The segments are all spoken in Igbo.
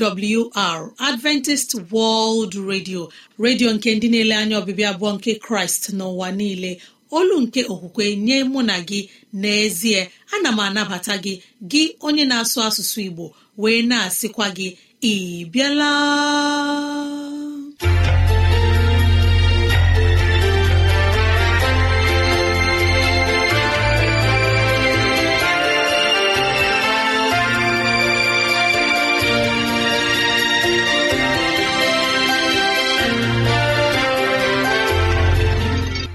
AWR Adventist World Radio redio nke ndị na-ele anya ọbịbịa abụọ nke Kraịst n'ụwa niile olu nke okwukwe nye mụ na gị n'ezie ana m anabata gị gị onye na-asụ asụsụ Igbo wee na-asịkwa gị ị bịala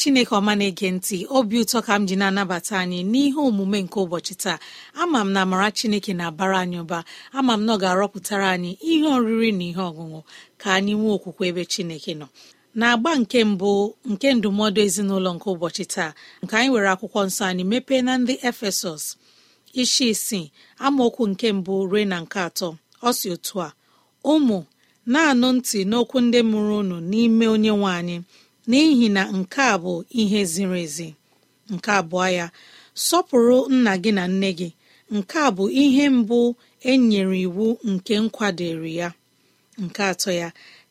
chineke ọma na-ege ntị obi ụtọ ka m ji na-anabata anyị n'ihe omume nke ụbọchị taa ama m na amara chineke na-abara anyị ụba ama m na ọ ga-arọpụtara anyị ihe oriri na ihe ọṅụṅụ ka anyị nwee okwukwe ebe chineke nọ na-agba nke mbụ nke ndụmọdụ ezinụlọ nke ụbọchị taa nke anyị were akwụkwọ nsọ anyị mepee na ndị efesọs isi isii amaokwu nke mbụ ruo na nke atọ ọ si otu a ụmụ na-anụ ntị n'okwu ndị mụrụ unu n'ime onye nwe anyị n'ihi na nke a bụ ihe ziri ezi nke abụọ ya sọpụrụ nna gị na nne gị nke a bụ ihe mbụ e nyere iwu nke nkwadoro ya nke atọ ya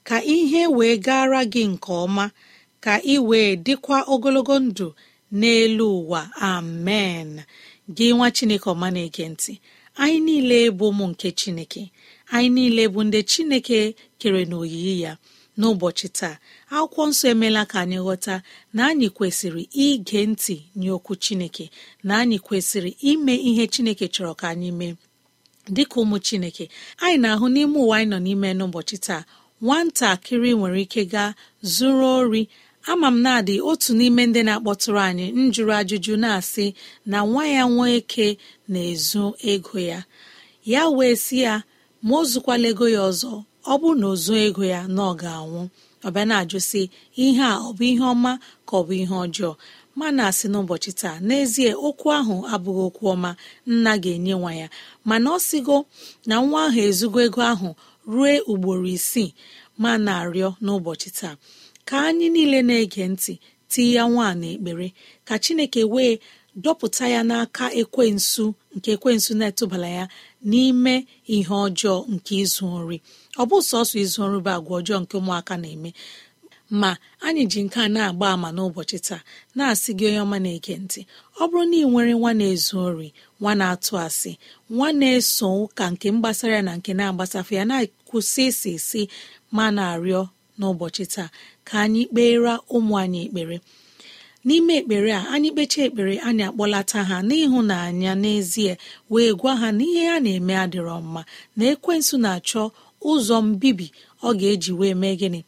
ka ihe wee gara gị nke ọma ka ị wee dịkwa ogologo ndụ n'elu ụwa amen gị nwa chineke ọma na-ege ntị anyị niile bụ ụmụ nke chineke anyị niile bụ ndị chineke kere n'oyiyi ya n'ụbọchị taa akwụkwọ nsọ emeela ka anyị ghọta na anyị kwesịrị ige ntị nye okwu chineke na anyị kwesịrị ime ihe chineke chọrọ ka anyị mee dịka ụmụ chineke anyị na-ahụ n'ime ụwa anyị nọ n'ime n'ụbọchị taa nwatakịrị nwere ike gaa zuru ori ama m na-adị otu n'ime ndị na-akpọtụrụ anyị njụrụ ajụjụ na-asị na nwa ya nwoke na-ezu ego ya ya wee sị ya ma o zukwala ego ya ọzọ ọ bụrụ na ozuo ego ya na ọ ga-anwụ ọbịa na-ajụ ihe a ọ bụ ihe ọma ka ọ bụ ihe ọjọọ ma na-asị n'ụbọchị taa n'ezie okwu ahụ abụghị okwu ọma nna ga-enye nwa ya mana ọ sịgo na nwa ahụ ezugo ego ahụ rue ugboro isii ma na-arịọ n'ụbọchị taa ka anyị niile na-ege ntị tii ya nwaanyị n'ekpere ka Chineke wee dọpụta ya n'aka ekwensu nke ekwensu na-etụbala ya n'ime ihe ọjọọ nke izu ori ọ bụ sọsọ izu nrube agwa ọjọọ nke ụmụaka na-eme ma anyị ji nke a na-agba àmà n'ụbọchị taa na-asị gị onye ọma na-ege ntị ọ bụrụ na ị nwere nwa na-ezu ori nwa na-atụ asị nwa na-eso ụka nke mgbasara ya na nke na-agbasafe ya na-akwụsị isi isi ma na-arịọ n'ụbọchị taa ka anyị kpeera ụmụ anyị ekpere n'ime ekpere a anyị kpechaa ekpere anyị akpọlata ha n'ịhụnanya n'ezie wee gwa ha na ihe ha na-eme adịrọ mma na ekwensụ na-achọ ụzọ mbibi ọ ga-eji wee mee gịnị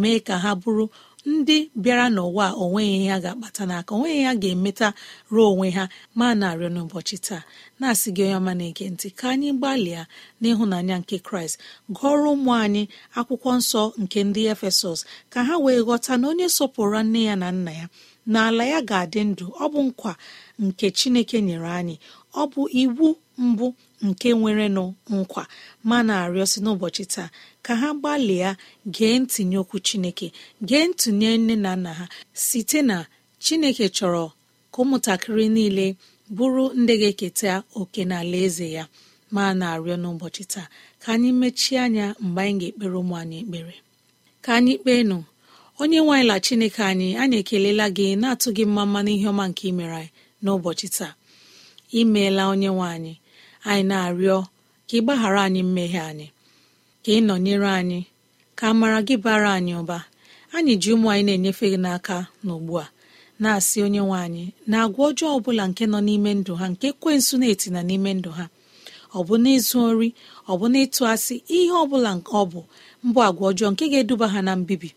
mee ka ha bụrụ ndị bịara n'ụwa onweghị ya ha ga-akpata n'aka onweghị ya ga-emeta ruo onwe ha ma na-arịọ n'ụbọchị taa na-asị gị onye ọma na-ege ntị ka anyị gbalịa n'ịhụnanya nke kraịst gụọrọ ụmụ anyị akwụkwọ nsọ nke ndị efesọs ka ha wee ghọta na onye sọpụrụ nne ya na nna ya na ala ya ga-adị ndụ ọ bụ nkwa nke chineke nyere anyị ọ bụ iwu mbụ nke nwere nwerenụ nkwa ma na-arịọ si n'ụbọchị taa ka ha gbalịa gee ntinye okwu chineke gee ntụnye nne na nna ha site na chineke chọrọ ka ụmụntakịrị niile bụrụ ndị ga-eketa oke n'ala eze ya ma na-arịọ n'ụbọchị taa ka anyị mechie anya mgbe anyị ga-ekpere ụmụ anyị ekpere ka anyị kpee nụ onye la chineke anyị anyị ekelela gị na-atụ gị mma mma n'ihe ọma nke imere anyị n'ụbọchị taa imeela onye nwe anyị anyị na-arịọ ka ị gbaghara anyị mmehie anyị ka ị nọnyere anyị ka amara gị bara anyị ụba anyị ji ụmụ anyị na-enyefe gị n'aka n'ugbu a na-asị onye nwe anyị na agwa ọjọọ ọbụla nke nọ n'ime ndụ ha nke ekwensu na-etina n'ime ndụ ha ọ bụ n'ịzụ ori ọ bụ n'ịtụ asị ihe ọbụla nke ọ bụ mbụ agwa ọjọọ nke ga-eduba ha na mbibi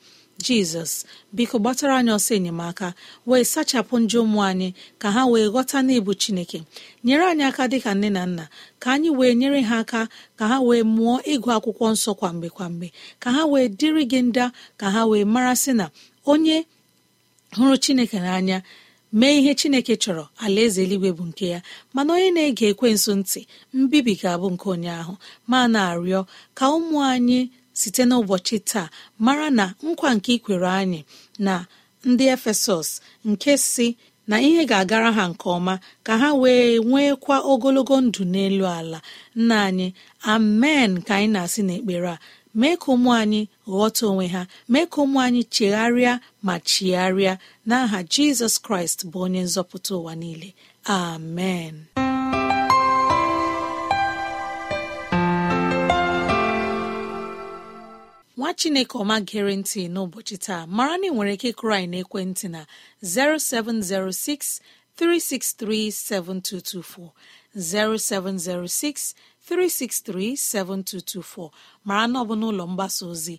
jizọs biko gbatara anyị ọsọ enyemaka wee sachapụ ndị ụmụ anyị ka ha wee ghọta n'ịbụ chineke nyere anyị aka dịka nne na nna ka anyị wee nyere ha aka ka ha wee mụọ ịgụ akwụkwọ nsọ kwamgbe kwamgbe ka ha wee dịrị gị nda ka ha wee mara sị na onye hụrụ chineke n'anya mee ihe chineke chọrọ alaeze eluigwe bụ nke ya mana onye na-ege ekwensu ntị mbibi ga-abụ nke onye ahụ ma na-arịọ ka ụmụ anyị site n'ụbọchị taa mara na nkwa nke ikwere anyị na ndị efesọs nke si na ihe ga-agara ha nke ọma ka ha wee nwekwa ogologo ndụ n'elu ala nna anyị amen ka anyị na-asị n'ekpere a mee ka ụmụ anyị ghọta onwe ha mee ka ụmụ anyị chegharịa ma chigharịa n'aha Jizọs Kraịst bụ onye nzọpụta ụwa niile amen nwa chineke ọma gere ntị n'ụbọchị taa mara na ị nwere ike ịkụrụ anyị n'ekwentị na 0706 363 7224 0706 363 7224 mara na ọ bụ n'ụlọ mgbasa ozi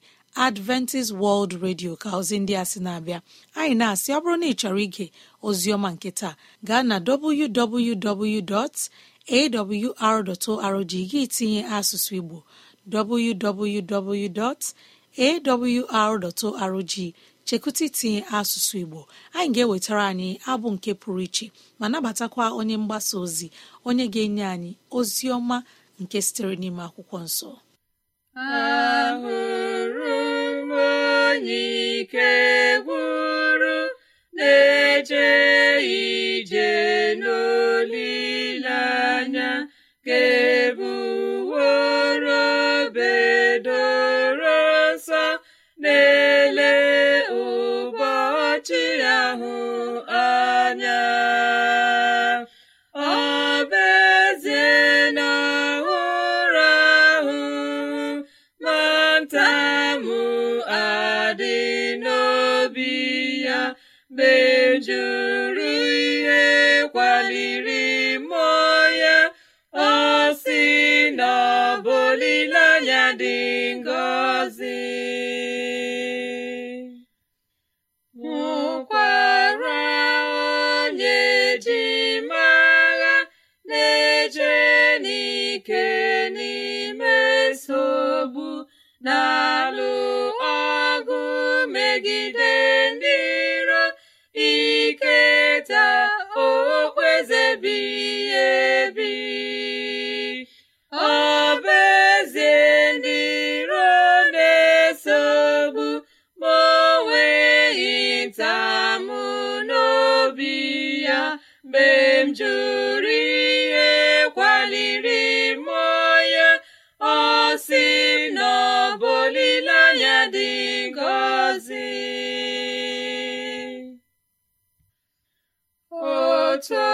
Adventist World Radio ka ozi ndị a sị na-abịa anyị na-asị ọ bụrụ na ị chọrọ ige ozi nke taa gaa na www.awr.org gị tinye asụsụ Igbo www.awr.org chekụta itinye asụsụ igbo anyị ga-ewetara anyị abụ nke pụrụ iche ma nabatakwa onye mgbasa ozi onye ga-enye anyị ozi ọma nke sitere n'ime akwụkwọ nsọ ahụrụ m onye ike gwụrụ ije n'olileanya lelee ụbọchị ahụ anya ọ bụ ezie na ụra ahụ ma adị n'obi ya mejuru ihe kwaliri lụ ọgụ megide ndị iro iketa okpueze bi ebi dị ngọzi otu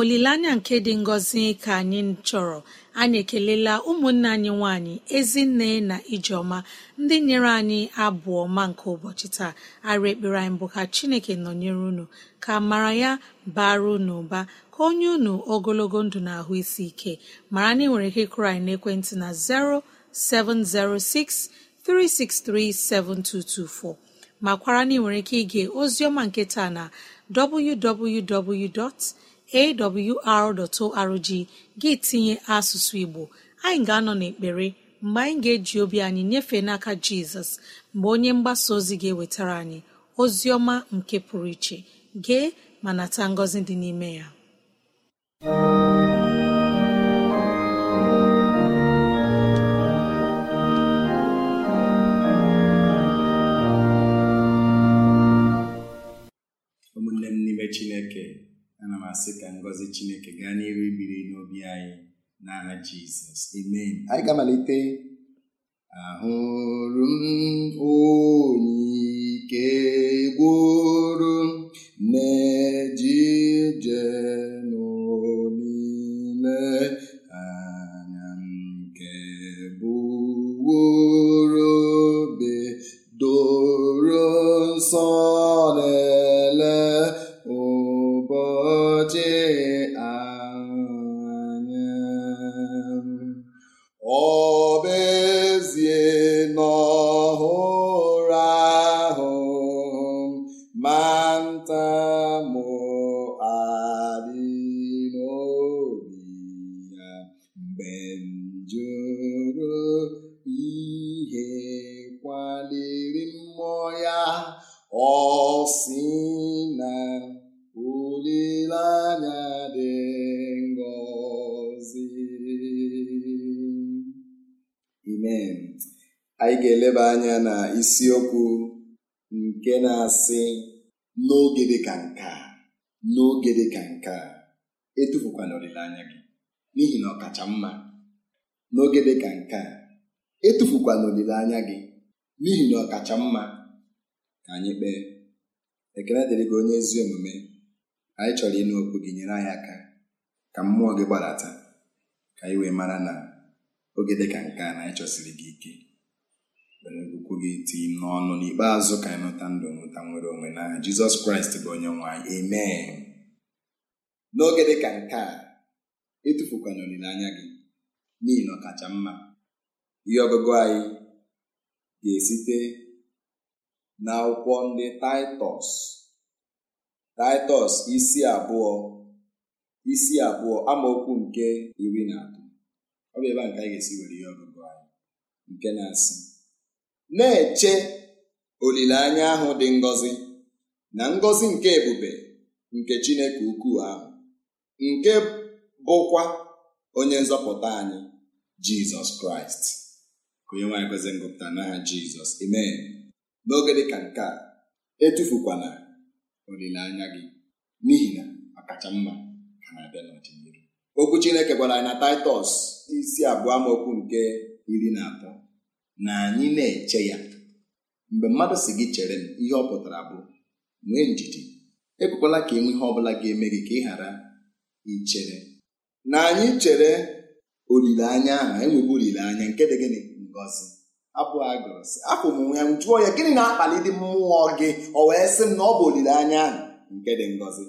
olileanya nke dị ngọzi ka anyị chọrọ anyị ekelela ụmụnne anyị nwanyị ezinne na ijeọma ndị nyere anyị abụ ọma nke ụbọchị taa arụ ekpere anyị bụ ka chineke nọnyere unu ka mara ya bara unu ụba ka onye unu ogologo ndụ na ahụ isi ike mara na ị nwere ike kụrụ anyị n'ekwentị na 0706 363 7224 makwara na ị nwere ike ige oziọma nke taa na www. awr.org gị tinye asụsụ igbo anyị ga-anọ n'ekpere mgbe anyị ga-eji obi anyị nyefee n'aka jizọs mgbe onye mgbasa ozi ga-ewetara anyị ozi ọma nke pụrụ iche gee ma nata ngọzi dị n'ime ya ụmụnne m n'ime chineke ana m asị ka ngọzi chineke gaa n'iru biri n'obi anyị n'aha jizọs amen anyị ga-amalite ahụrụ m onye ike ọ sị na olileanya dị ngọzi amen anyị ga-eleba anya na isiokwu nke na-asị n'oge dị ka nke a n'oge dị ka nke a etufukwana olileanya gị n'ihi na ọ kacha mma n'oge dị ka nke a etufukwana olileanya gị n'ihi na ọ kacha mma ka anyị kpee ekele dịrị gị onye ezi omume anyị chọrọ ịnụ okwu gị nyere anyị aka ka mmụọ gị gbadata ka anyị wee mara na oge dị ka nke a na anyị chọsiri gị ike were okwu gị tii n'ọnụ n'ikpeazụ ka anyị nụta ndụ nwụta nwere onwe na jizọs kraịst bụ onye nwe n'oge dị ka nke a etufukwana olileanya gị n'ihi na ọkacha mma ihe ọgụgụ anyị ga-esite na akwụkwọ ndị taịtọs taịtọs isi abụọ isi abụọ amaokwu nke iri na atọ ọ bụ ebe a nke anyị ga-esi were ihe ọgụgụ anyị nke na-asị na-eche olileanya ahụ dị ngọzi na ngọzi nke ebube nke Chineke ukwu ahụ nke bụkwa onye nzọpụta anyị Jizọs Kraịst onye nwanyị kwezi ngụpụta n'aha Jizọs amen n'oge dị ka nke a etufukwana olileanya gị n'ihi na ọkacha mma ka na-abịa n'ọdịnihu okwu Chineke gwara anyị na Taịtọs isi abụọ amaokwu nke iri na atọ na anyị na-eche ya mgbe mmadụ si gị chere m ihe ọ pụtara bụ nwee njiji ekwekwala ka enwe ihe ọ bụla ga-eme gị ka ị ghara ichere na anyị chere olileanya ahụ enweghị olileanya nke dị gịnị ngozi abụ a gụrụ afọ m ya m jụọ ya gịnị na-akpali dị mmụọ gị ọ wee sị m na ọ bụ olileanya ahụ nke dị ngọzi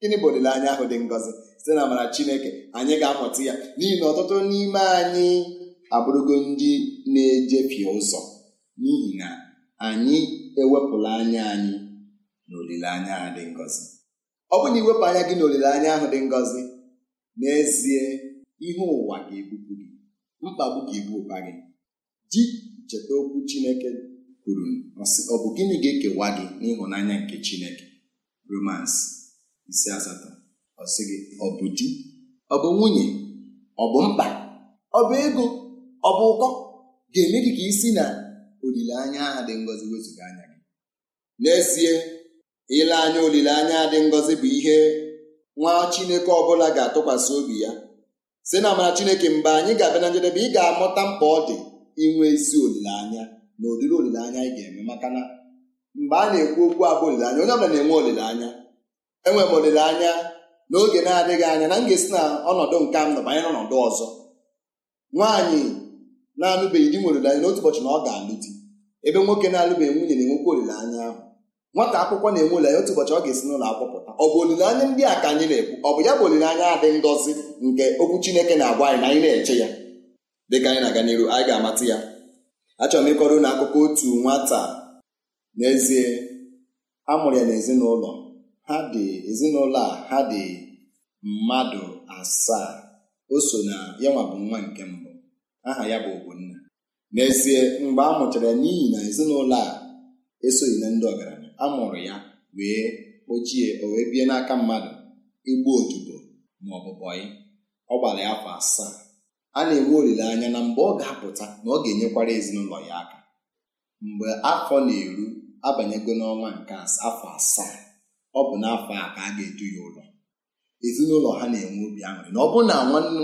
gịnị bụ olileanya ahụ dị ngọzi site na amara chineke anyị ga-amụta ya n'ihi na ọtụtụ n'ime anyị abụrụgo ndị na-ejefie ụzọ n'ihi na anyị ewepụla anya anyị na olileanya ahụ dị ngọzi ọ bụ na iwepụ anya gị na olileanya ahụ dị ngọzi n'ezie ihe ụwa ga-ebupụ gị mkpagbu ga-ebu ụba gị ji cheta okwu Chineke kwuru ọ bụ gịnị ga-ekewa gị n'ịhụnanya nke Chineke Romans isi asatọ ọ sị gị ọ bụ di ọ bụ nwunye ọ bụ mkpa ọ bụ ego ọ bụ ụkọ ga-eme gị ka isi na olileanya aha dị ngọzi wezụga anya gị n'ezie ile anya olileanya dị ngọzi bụ ihe nwa Chineke ọbụla ga-atụkwasị obi ya si na amara Chineke mgbe anyị ga-abịa na njedebe ị ga-amụta mkpa ọ dị inwe isi olileanya na ụdịrị olileanya anyị ga-eme maka na mgbe a na-ekwu okwu abụ olileanya onye ọbụla na-enwe olileanya enwere m olileanya n'oge na-adịghị anya na m ga-esi na ọnọdụ nke m nọ banyere ọnọdụ ọzọ nwaanyị na-alụbeghị di nwere olileanya n'otu ụbọchị na ọ ga-alụ di ebe nwoke na-alụbeghị nwunye na-enwekwa olileanya ahụ nwata akwụkwọ na-enwe olileanya otu ụbọchị ọ ga-esi n'ụlọ akwụkwọ pụta ọ bụ olileanya ndị a ka anyị na-ekwu ọ bụ ya bụ olileanya adị ngọzi nke okwu Chineke na-agwa anyị na anyị na-eche ya dịka anyị na-aga n'iru anyị ga-amata ya achọrọ m ịkọrọ na akụkọ otu nwata n'ezie a mụrụ ya n'ezinụlọ ha dị ezinụlọ a ha dị mmadụ asaa o so na ya nwa bụ nwa nke mbụ aha ya bụ Ogbonna n'ezie mgbe a mụchara ya n'ihi na ezinụlọ a esoghị na ndị ọgaranya a mụrụ ya wee ochie o wee bie n'aka mmadụ igbu odibo ma ọ bụ bọyị ọ gbara ya afọ asaa a na-enwe olileanya na mgbe ọ ga-apụta na ọ ga-enyekwara ezinụlọ ya aka mgbe afọ na-eru abanyego n'ọnwa nke afọ asaa ọ bụ n'afọ a ka a ga-edu ya ụlọ ezinụlọ ha na-enwe obi aṅụrị na ọ bụrụ na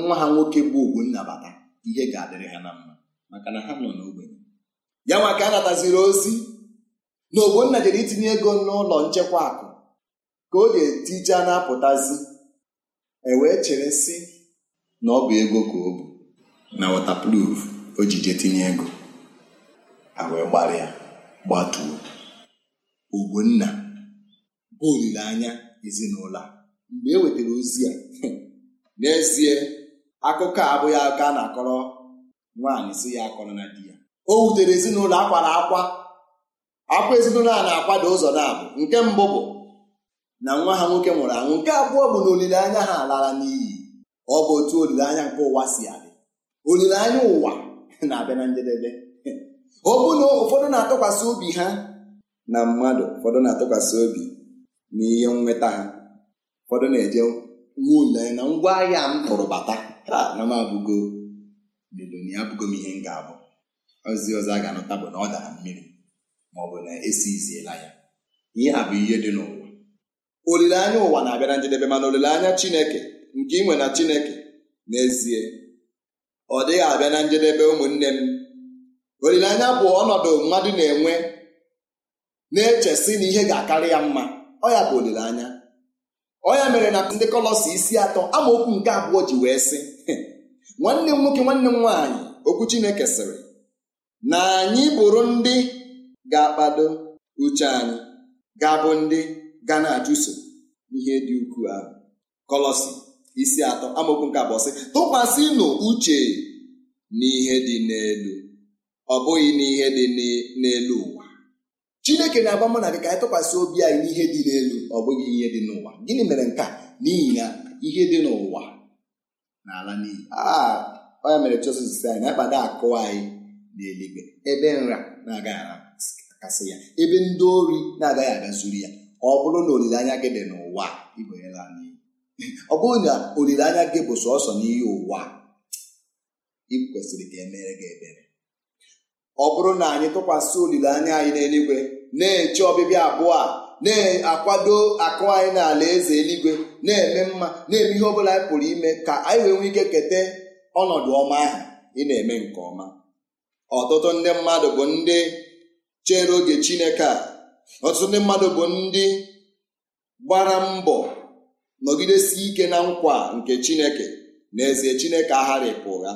nwa ha nwoke bụ ogbu nnabata ihe ga-adịrị ha na mma maka na ha nọ n'ogbenye ya nwa ka a ozi na ogbonna jere itinye ego n'ụlọ nchekwa akụ ka ọ ga-etije na-apụtazi e wee chere sị na ọ bụ ego ka o bụ na wọtapruf o ji jee tinye ego ha wee gbara gbatuo ogbonna bụ olileanya ezinụlọ a mgbe e wetara ozi a n'ezie akụkọ a abụghị aka a na-akọrọ nwaanyị si ya akọrọ na di ya o wutere ezinụlọ akwara akwa akwa ezinụlọ a na-akwado ụzọ na-abụ nke mbụ bụ na nwa ha nwoke nwụrụ anwụ nke abụọ bụ na olileanya ha lara n'iyi ọ bụ otu olileanya nke ụwa si adị olileanya ụwa na-abịa na njedebe ọ bụ na ụfọdụ na-atụkwasị obi ha na mmadụ ụfọdụ na-atụkwasị obi na ihe nweta ha ụfọdụ na-eje nwa olileanya na ngwa ahịa m tụrụ bata na m abụgo leloni abụgo m ihe m ga-abụ ozi ọzọ a ga-anụta bụ na ọ dara mmiri ma ọ bụ na esi iziela ya ihe a bụ ihe dị n'ụwa olileanya ụwa na-abịa na njedebe mana olileanya Chineke nke inwe na Chineke n'ezie ọ dịghị abịa na njedebe ụmụnne m olileanya bụ ọnọdụ mmadụ na-enwe na-echesi na ihe ga-akarị ya mma ọ ya bụ olileanya ọ ya mere na ndị kọlọsi isi atọ amaokwu nke abụọ ji wee sị nwanne m nwoke nwanne m nwaanyị okwu Chineke sịrị na anyị bụrụ ndị ga-akpado uche anyị ga-abụ ndị ga na-achụso ihe dị ukwuu ahụ kọlọsi isi atọ amaokwu nke abụọ sị tụkwasịnụ uche n'ihe dị n'elu ọ bụghị n'ihe dị n'elu ụwa chineke na-agba mụ na gị ka anyị tụkwasị obi anyị n'ihe dị n'elu ọ bụghị ihe dị n'ụwa gịnị mere nke a n'ihi na ihe dị n'ụwa n'ala n'iyi ọ ah, ya mere Jizọs si anyị na-akpado akụ anyị n'eluigwe ebe nra na-agaghị akasị ya ebe ndị ori na-agaghị aga ya ọ bụrụ na olileanya gị dị n'ụwa ọ bụrụ na olileanya gị bụ sọsọ n'ihe ụwa ị kwesịrị ka emere gị ebere ọ bụrụ na anyị tụkwasị olileanya anyị n'eluigwe na-eche ọbịbịa abụọ a na-akwado akụ anyị n'ala eze eluigwe na-eme mma na-eme ihe ọ bụla anyị pụrụ ime ka anyị wee nwee ike keta ọnọdụ ọma ahụ ị na-eme nke ọma ọtụtụ ndị mmadụ bụ ndị chere oge Chineke a ọtụtụ ndị mmadụ bụ ndị gbara mbọ nọgidesi ike na nkwa nke chineke na eze chineke agharịpụ ụgha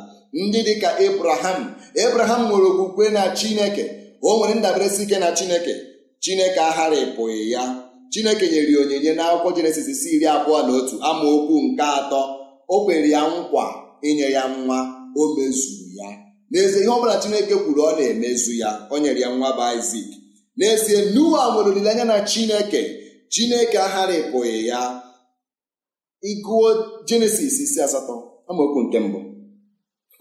ndị dịka ebraham ebraham nwere okwukwe na chineke o nwere si ike na chineke chineke agharịpụghị ya chineke nyere ya onyinye n'akwụkwọ jenesis si iri abụọ na otu amaokwu nke atọ o kwere ya nkwa inye ya nwa o mezuru ya n'ezie ihe ọ bụla chineke kwuru ọ na-emezu ya o nyere ya nwa bụ isak n'ezie nuwa nwere olileanya na chineke chineke agharịpụghị ya ịgụọ jenesis isi asatọ amaokwu nke mbụ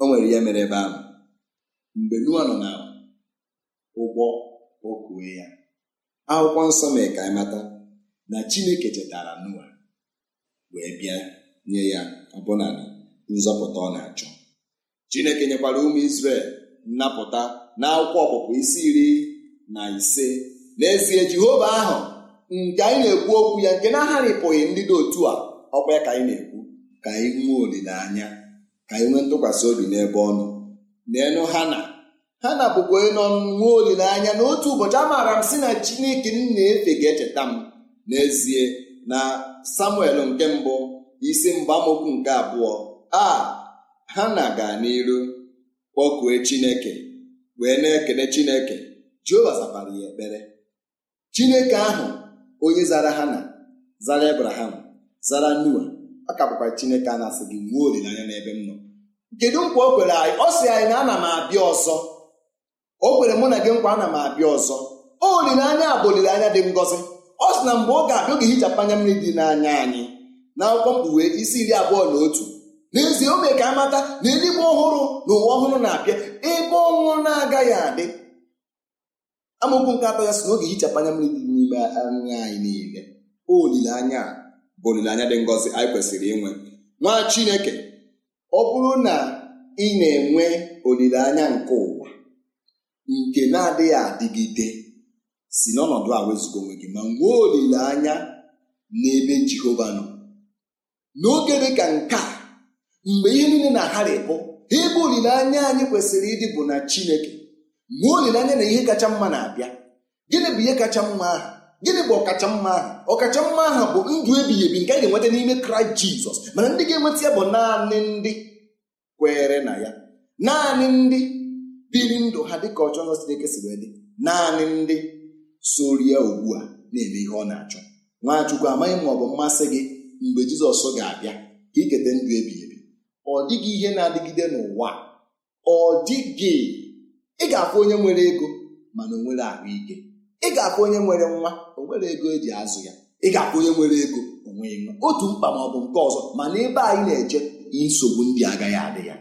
o nwere ihe mere ebe ahụ mgbe Noa nọ na ụgbọ okue ya akwụkwọ nsọ mee ka anyị mata na Chineke chetara Noa wee bịa nye ya ọbụna nzọpụta ọ na-achọ Chineke nyekwara ụmụ Izrel nnapụta na akwụkwọ ọpụpụ isi iri na ise n'ezie Jehova ahụ nke anyị na-ekwu okwu ya nke na-agharịpụghị ndị dị otu a ọkwa ka anyị na-ekwu ka anyị nwee olileanya ka anyị nwee ntụkwasị obi n'ebe ọ nọ naenụ hana hana bụkwa nọ nwee olileanya na otu ụbọchị amaara m si na chineke m na-efe ga-echeta m n'ezie na samuel nke mbụ isi mgbamokwu nke abụọ a hana ga n'iru kpọkue chineke wee na-ekele chineke jehova zapara ya ekpere chineke ahụ onye zara na zara ebraham zara Noa ọ ka Chineke a na-asị gị olileanya n'ebe m nọ kedu nkwa o kwere anyị ọ sị anyị na ana m abịa ọzọ o kwere mụ na gị nkwa ana m abịa ọzọ olileanya bụ olileanya dị ngọzi ọ sị na mgbe ọ ga-abịa oge hichapụ anya mmiri dị n'anya anyị na akwụkwọ mkpughe isi iri abụọ na otu n'ezie o mee ka amata na eluigwe ọhụrụ na ụwa ọhụrụ na-abịa ebe ọnwụ na-agaghị adị amaokwu nke atọ ya sị na oge hichapụ anya mmiri dị n'ime anya anyị niile olileanya bụ olileanya dị ngọzi anyị kwesịrị inwe nwa chineke ọ bụrụ na ị na-enwe olileanya nke ụwa nke na-adịghị adịgide si n'ọnọdụ a wezụga onwe gị ma nwee olileanya n'ebe jehova nọ n'oge dị ka nke a mgbe ihe niile na-agharịpụ ịbụ olileanya anyị kwesịrị ịdị bụ na chineke nwee olileanya na ihe kacha mma na-abịa gịnị bụ ihe kacha mma ahụ gịnị bụ ọkacha mma aha ọkacha mma aha bụ ndụ ebighị ebi nke a ga-enweta n'ime kraịst jizọs mana ndị ga-enweta ya bụ naanị ndị kwere na ya naanị ndị biri ndụ ha dịka ọchọ ọzọ Chineke si wee dị naanị ndị soro ya ugbu a na-eme ihe ọ na-achọ nwachukwu amaghị ma ọ bụ mmasị gị mgbe jizọs ga-abịa ka iketa ndụ ebighị ebi ọ dịghị ihe na-adịgide n'ụwa ọ dịghị ị ga-afụ onye nwere ego mana o nwere ahụike ị ga-akwụ onye nwere nwa o nwere ego eji azụ ya ị ga-akwụ onye nwere ego onwe nwa otu mkpa ma ọ bụ nke ọzọ mana ebe anyị na-eche nsogbu ndị agaghị adị ya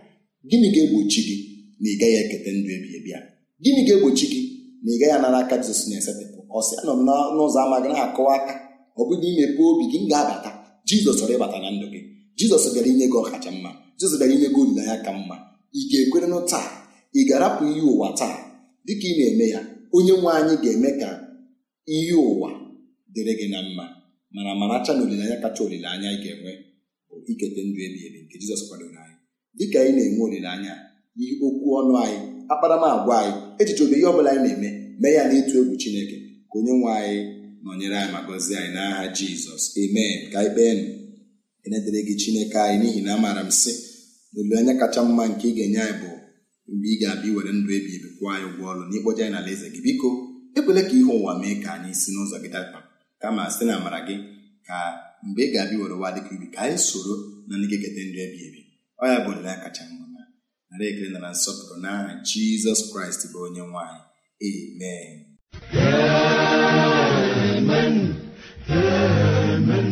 gịnị ga-egbochi gị na ị gaghị eketa ndụ ebighị ebi ya gịnị ga-egbochi gị na ị gaghị anara aka Jizọs na-esetịpụ ọsị anọ m n'ụzọ ama gị na-akọwa aka ọ bụghị na imepe obi gị ga-abata Jizọs chọrọ ịbata na ndụ gị Jizọs bịara inye gị ọkacha mma Jizọs bịara inye gị olileanya ka mma ị ga-ekwere taa ị ga-arapụ ihe ụwa taa dịka ị na-eme ya onye nwe anyị ga-eme ka ihe ụwa dịrị gị na mma mana maracha na olileanya kacha olileanya ị ga-enwe bụ ikete ndụ ebi ebi nke Jizọs kwadoro anyị dịka anyị na-enwe olileanya ihe okwu ọnụ anyị akparamagwa anyị echiche obe ihe ọ bụla anyị na-eme mee ya n'ịtụ egwu Chineke ka onye nwe anyị nọnyere anyị ma gọzie anyị n'agha Jizọs amen ka anyị kpeenụ enedere gị Chineke anyị n'ihi na amaara m sị na olileanya kacha mma nke ị ga-enye anyị bụ mgbe ị ga-abịa iwere ndụ ebi ebi kwụọ anyị ụgwọ ọrụ na ịkpọje anyị n'ala eze gị biko ekwela ka ihe ụwa mee ka anyị si n'ụzọ gị dapa kama site na amara gị ka mgbe ị ga-abịa were ụwa dịka ibi ka anyị soro na ndị ga-eketa ndụ ebi ebi ọ ya bụ olileanya kacha mma na nara ekele na na nsọpụrụ n'aha jizọs kraịst bụ onye nwanyị amen amen amen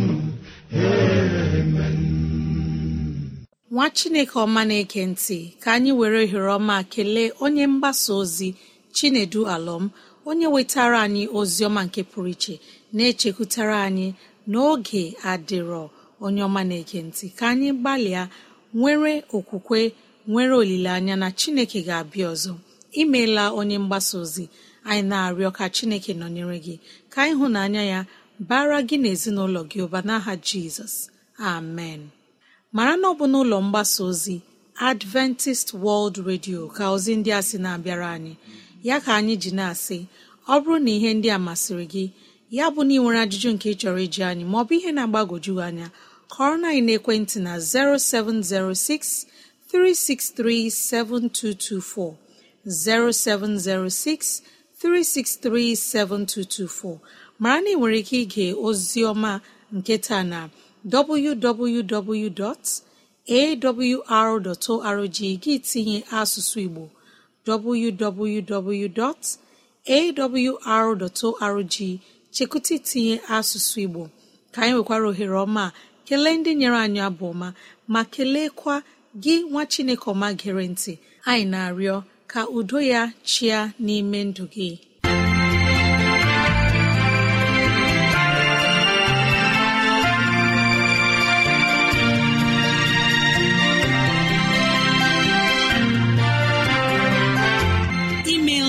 amen nwa chineke ọma na-eke ntị ka anyị were ohere ọma kelee onye mgbasa ozi chinedu alọm onye wetara anyị ozi ọma nke pụrụ iche na-echekwutara anyị n'oge adịrọ onye ọma na-eke ntị ka anyị gbalịa nwere okwukwe nwere olileanya na chineke ga-abịa ọzọ imeela onye mgbasa ozi anyị na-arịọ ka chineke nọnyere gị ka ịhụnanya ya bara gị na gị ụba n'aha jizọs amen mara na ọ bụ n'ụlọ mgbasa ozi adventist world radio ka ozi ndị a sị na-abịara anyị ya ka anyị ji na-asị ọ bụrụ na ihe ndị a masịrị gị ya bụ na ị nwere ajụjụ nke ị chọrọ iji anyị ma ọ bụ ihe na-agbagwoju anya kọrọ na ekwentị na 0706 363 0706 363 7224 mara na ị nwere ike ige ozi ọma nke taa na www.awr.org gị tinye asụsụ Igbo www.awr.org chekụta tinye asụsụ Igbo ka anyị nwekwara ohere ọma kelee ndị nyere anyị abụ ọma ma keleekwa gị nwa Chineke ọma gere ntị anyị na-arịọ ka udo ya chịa n'ime ndụ gị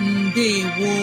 ndewo